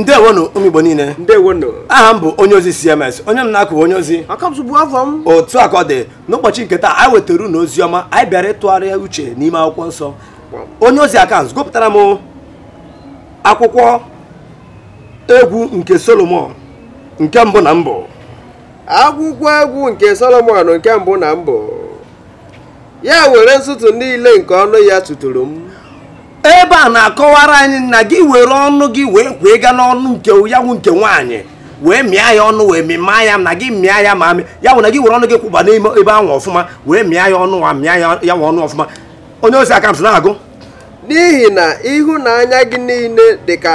ndewonu ụmụ Igbo niile aha m bụ onye ozi CMS onye m na-akụ onye ozi otu a ka ọ dị n'ụbọchị nke taa anyị wetara unu ozi ọma anyị bịara ịtụgharịa uche n'ime akwụkwọ nsọ onye ozi akant gụpụtara m akwụkwọ egwu nke Solomon nke mbụ na mbụ akwụkwọ egwu nke Solomon nke mbụ na mbụ ya were ntụtụ niile nke ọnụ ya tụtụrụ m ebe a na-akọwara anyị na gị were ọnụ gị wee kwee ga n'ọnụ nke ya nke nwaanyị wee mịa ya ọnụ wee mịma ya na gị mịa ya ma amị ya wụ na gị were ọnụ gị kwụba n'ime ebe ahụ ọfụma wee mịa ya ọnụ wa mịa ya nwa ọnụ ọfụma onye osi aka m na-agụ n'ihi na ịhụnanya gị niile dị ka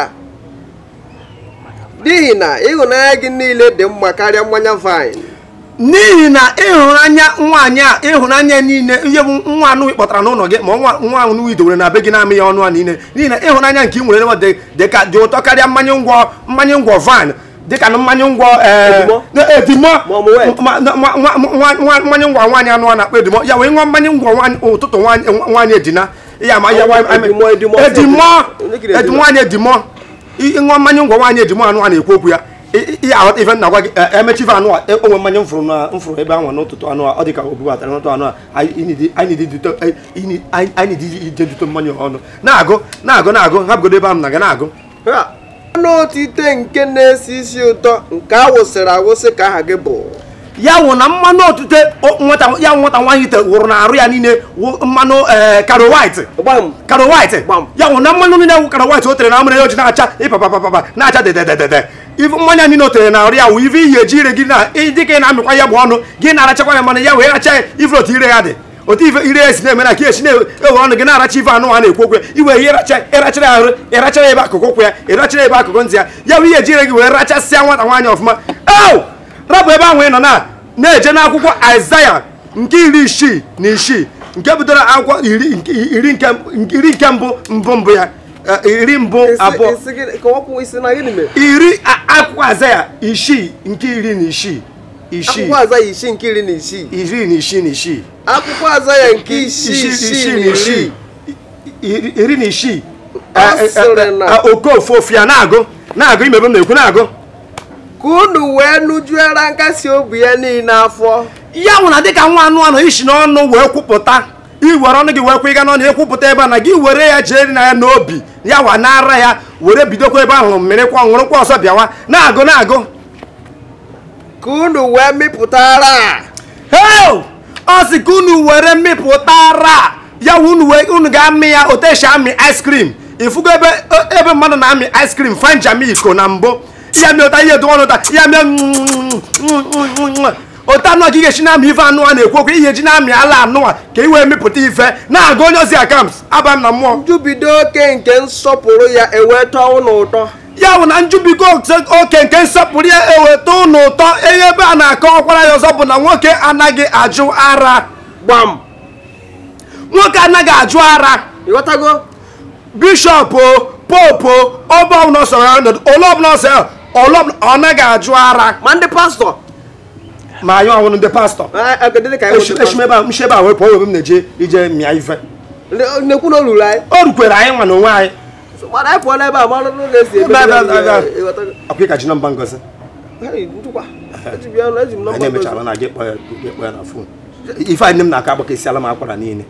n'ihi na ịhụnanya gị niile dị mma karịa mmanya vine n'ihi na ịhụnanya nwaanyị a ịhụnanya niile ihe bụ nwa anụ kpọtara n'ụlọ gị ma nwa anụ idowere na be gị na-amị ya ọnụ a niile n'ihi na ịhụnanya nke ị nwere nwa dịka dị ụtọ karịa mmanya ngwọ mmanya ngwọ van dịka na mmanya ngwọ e, edimo mmanya ngwọ nwaanyị anụ a na-akpọ edimo ya wee ṅụọ mmanya ngwọ ụtụtụ nwaanyị edina ya ma ya edimo nwaanyị edimo ịṅụọ mmanya ngwọ nwaanyị edimo anụ a na-ekwu okwu ya ife nna gwa gị emechi eh, eh, fa anụ a eh, onwe mmanya mfuru na mfuru ebe ahụ n'ụtụtụ anụ a ọ dị ka o bubatara n'ụtụ anụ a anyị dị ije dute mmanya ọnụ na ago na ago na-agụ hapụgodo ebe ahụ na ga na-agụ nke na nke ka ya wụ na otute ya nwata nwaanyị na aru ya niile ya wụ na mmanụ niile wụ o tere na na-acha na-acha ife mmanya niile o tere na ọrịa wụ ife iyi eji ire gị na dị ka ị na-amịkwa ya bụ ọnụ gị na-arachakwa ya mana ya wee racha ife otu ire ya dị otu ife ire ya si na-eme na ka esi na-ewe ọnụ gị na-aracha ife anụ a na-ekwu okwu ya iwe ihe ịrachara ya arụ ịrachara ebe akụkụ ụkwụ ya ịrachara ebe akụkụ ntị ya ya bụ ihe eji ire gị wee rachasịa nwata nwaanyị ọfụma e rapụ ebe ahụ ị nọ na na-eje n'akwụkwọ Aịzaya nke iri isii na isii nke bidoro akwụkwọ iri nke mbụ mbụ mbụ ya Eh, iri mbụ abụọ iri akwụkwọ azaya isii nke iri na isii akwụkwọ azaya isii nke iri na isii iri na isii na isii akwụkwọ azaya nke isii isii na isii iri na isii okofu ofu ya na-agụ na-agụ imebe m na-ekwu na-agụ ka unu wee nụjuera nkasi obi ya niile afọ ya nwụ dịka nwa anụ anụ isi n'ọnụ wee kwupụta iwere ọnụ gị wee kwụ ịga n'ọnụ ekwupụta ebe a na gị were ya jee na ya n'obi ya wa n'ara ya were bidokwa ebe ahụ mmirikwa ọṅụrụkwa ọsọ bịawa na-agụ na-agụ ka unu wee mịpụtara ọ sị ka unu were mịpụtara ya unu ga-amị ya oteshi amị ice cream ifugo ebe mmadụ na-amị ice cream fanjami iko na mbụ ya mịọta ihe dụọnụta ya mịọ mm, mm, mm, otu anụ ka ị ga-esi na-amị ife anụ a na-ekwu okwu ihe ji na-amị ala anụwa ka ị wee mepụta ife na-agụ onye ozi akams aba m na mmụọ njubido oke nke nsọpụrụ ya eweta ụlọ ụtọ ya bụ na njubigo oke nke nsọpụrụ ya eweta ụlọ ụtọ enye ebe a na-akọ ọkwara ya ọzọ bụ na nwoke anaghị ajụ ara gbam nwoke anaghị ajụ ara ịghọtago bishọp popu ọbụla ọsọ ya ole ọbụla ọsọ ya ọ naghị ajụ ara ma ndị pastọ ma anyị ọhụrụ ndị pastọ esi ebe a m na-eje ije mịa ife na o anyị rukwere anyị nwa na onwe anyị ọkụka ji ngozi anyị emechara na gị kpọọ na fon ife anyị m na-aka agbaka si ala m akwara niile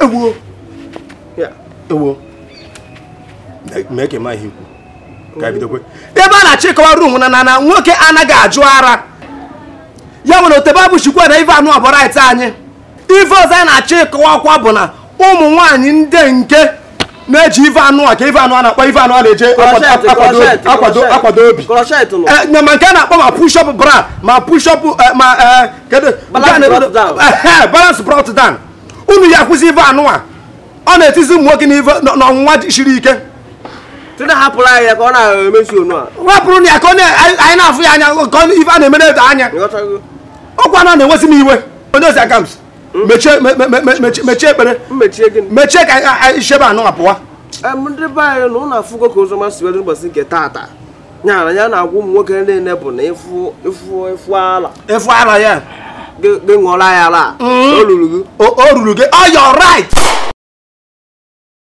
ewuo mee ka ị ma ka e ebe a na-achịkọwa rum na na nwoke anaghị ajụ ara ya nwere otebe abụ chikwa na ife anụ ọbụrait anyị ife ọzọ anyị na-achọ ịkọwa kwa bụ na ụmụ nwanyị ndị nke na-eji ife anụ a ka ife anụ a na-akpọ ife anụ a na-eje akwado obi eh, Nyama nke a na-akpọ ma pushọp bra ma pushọp eh, ma eh, balance brought down unu ya kwụsị ife anụ a ọ na-etizi ụmụ nwoke n'ọnwụnwa siri ike tụrụ hapụrụ anyị ka ọ na-emezu onụ a pụrụ na ya ka anyị na-afụ ya anya nke ife a na-emere eto anya ọkwa na na-enwezi m iwe onye ozi aka hmm? mechie ekpere mechie ka anyị chebe anụ apụwa ndị be anyị na nke taata ya na-agwa ụmụ nwoke bụ na ịfụ ala ịfụ ala ya ala hmm? ruru gị o ruru gị ọ oh,